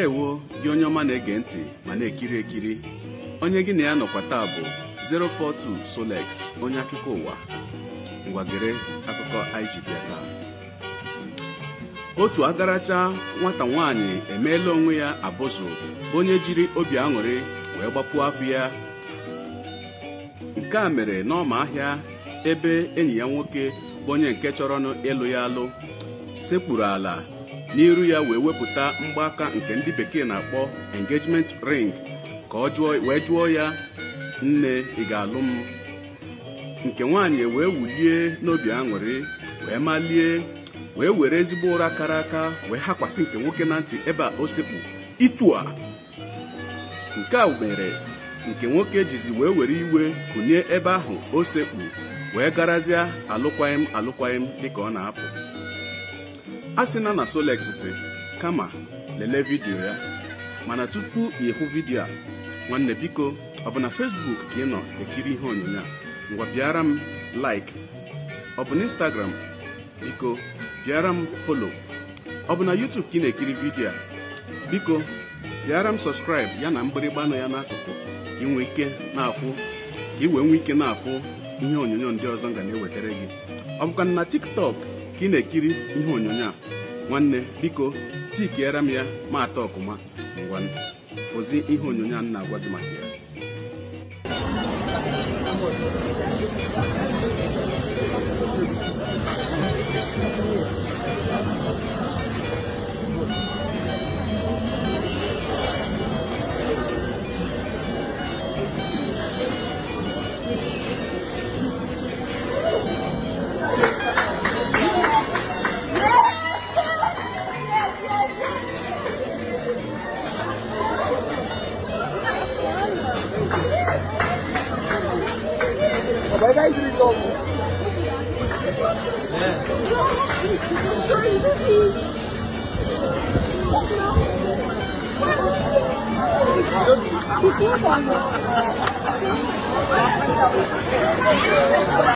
ndewo gị onye ọma na-ege ntị ma na-ekiri ekiri onye gị na ya nọkwa taa bụ 042 Solex onye akụkọ ụwa ngwagere akụkọ anyị otu agaracha nwata nwanyị emeela onwe ya abụzụ onye jiri obi aṅụrị wee gbapụ afọ ya nke a mere n'ọma ahịa ebe enyi ya nwoke bụ onye nke chọrọnụ ịlụ ya alụ sekpuru ala n'iru ya wee wepụta mgbaaka nke ndị bekee na-akpọ engagement ring ka ọ jụọ wee jụọ ya nne ị ga-alụ m nke nwaanyị e wee wulie n'obi aṅụrị wee malie wee were ezigbo ụra kara aka wee hakwasị nke nwoke na ntị ebe a o sekpu itu a nke a mere nke nwoke jizi wee were iwe kụnye ebe ahụ osekpu wee garazie alụkwaghị m dịka ọ na-apụ a sị na na Solex si kama lelee vidiyo ya mana tupu ị hụ vidiyo nwanne biko ọ bụ na Facebook ka nọ ekiri ihe onyonyo a ngwa bịara m like ọ bụ na Instagram biko bịara m follow ọ bụ na YouTube ka ị na-ekiri vidiyo biko bịara m subscribe ya na mgbịrịgba nọ ya n'akụkụ ka ị nwee ike na na-afụ ihe onyonyo ndị ọzọ nga na-ewetara gị ọ bụkwa na tiktok ka ị na-ekiri ihe onyonyo a nwanne biko tikiere m ya ma atọ ọkụma ngwa fụzi ihe onyonyo a na-agwa gị maka ya đây thì gồm Thank you.